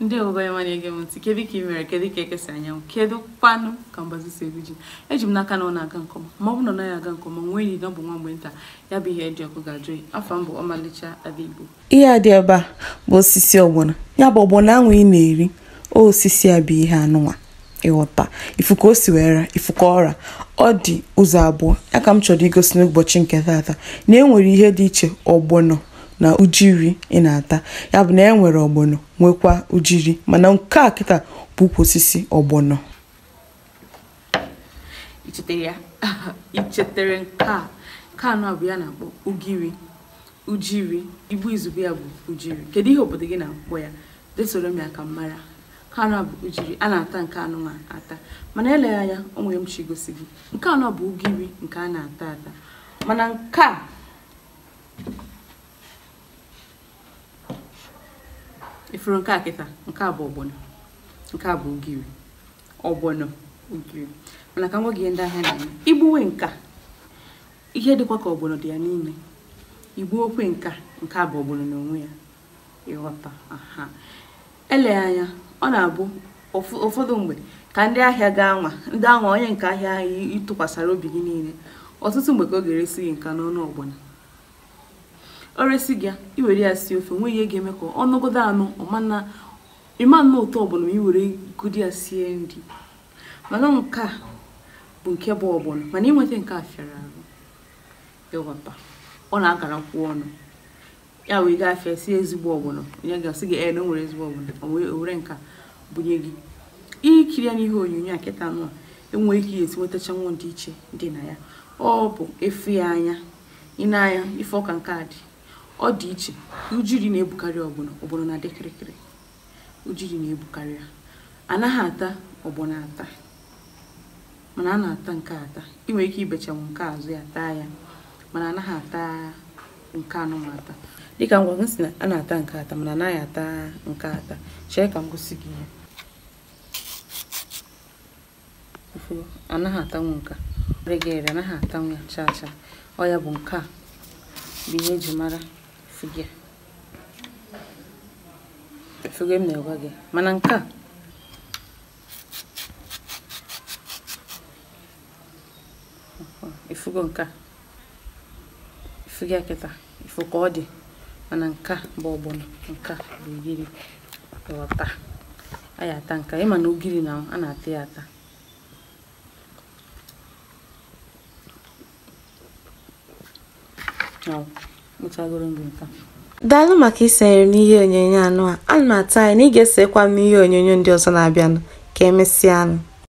ndị obanye ya na-ege m ntị kedu ka ị mere kedu ka ekesa anyanwụ kedu kwanụ ka mgbazi si ji eji m n'aka na ọ na-aga nke ọma ma ọ bụ na ọ naghị aga nke ọma nwee enyi na ọ bụ nwa mgbe nta ya bụ ihe dị ọkụ ga-ajụ ya afọ mbụ ọmalịcha ada igbo ihe a dị ebe a bụ osisi ọgbọna ya bụ ọgbọna anwụ ị na-eri osisi a bụ ihe anụnwa ịghọta ifu ka o si ifu ka ọra ọ dị ụzọ abụọ ya ka m chọrọ igosi n'ụbọchị nke taata na e nwere ihe dị iche ọgbọnọ na ujiri ị na-ata ya bụ na e nwere ọgbọnọ nwekwa ujiri mana nke a kịta bụ ukwu osisi ọgbọnọ ichetere nke a nke anọ bụ ya na-akpọ ugiri ujiri igbu izugbe ya bụ ujiri kedu ihe obodo gị na-akpọ ya desoro m ya ka m mara nke anọ bụ ujiri a na-ata nke anụ ma ata mana eleghị anya o nwere m chi igosi gị nke anọ bụ ugiri nke a na-ata ata mana nke a ifuru nke kịta nke bụ ogbono nke bụ ugiri ogbono ugiri mana ka m ihe ndị ahịa na-eme igbuwe nka ihe dịkwa ka ogbono dị ya n'ime okwe nka nke a bụ ogbono n'onwe ya ịghọta ele anya ọ na-abụ ụfọdụ mgbe ka ndị ahịa gaa nwa ndị anwa onye nke ahịa ahụ ịtụkwasara obi gị niile ọtụtụ mgbe ka ọ ga-eresi gị nka n'ọnụ ogbono oresi gị iwere ya si ofe nwe ihe ga-eme ka ọnọgodo anụ ịma nnọọ ụtọ ọbụla ma iwere gudi ya sie nri mana nke a bụ nke bụ ọbụla mana ịnweta nke a fịara arụ ịghọta ọ na-akara kwụ ọnụ ya wee gaa afịa sie ezigbo ọbụla onye ga-asị gị ee na nwere ezigbo ọbụla owere nka nke a gị ikiri ya n'ihe onyonyo a kịta nụ enwee ike esi nwetachanwụ dị iche dị na ya ọ bụ efu ya anya ị na-anya ife ọka nke a dị ọ dị iche ujiri na-ebukarị ọgbọnọ ọgbọnọ na-adị kịrịkịrị ujiri na-ebukarị ya anaghị ata ọgbọnọ ata mana a na-ata nke ata ị nwere ike ibechanwu nke azụ ya taa ya mana anaghị ata nke anụ anụmata dịka ngwa m si na a na-ata nke ata mana anaghị ata nke ata chee ka m gosi gị ihe anaghị atanwu nke ere gị ere anaghị atanwu ya chaa chaa ọ ya bụ nke a bụ ihe eji mara si bịa m na-agwa gị mana nke a efugo nke a efugo akịta ifu ka ọ dị mana nke a bụ ọgbọnọ nke a bụ ugiri ọta a ya ata nke ịma na ugiri na a na-ata ya ata Oh. daalụ maka isonyere m n'ihe onyonyo anụ a ana m atụ na ị ga esekwa m ihe onyonyo ndị ọzọ na-abịanụ ka emesịa anụ.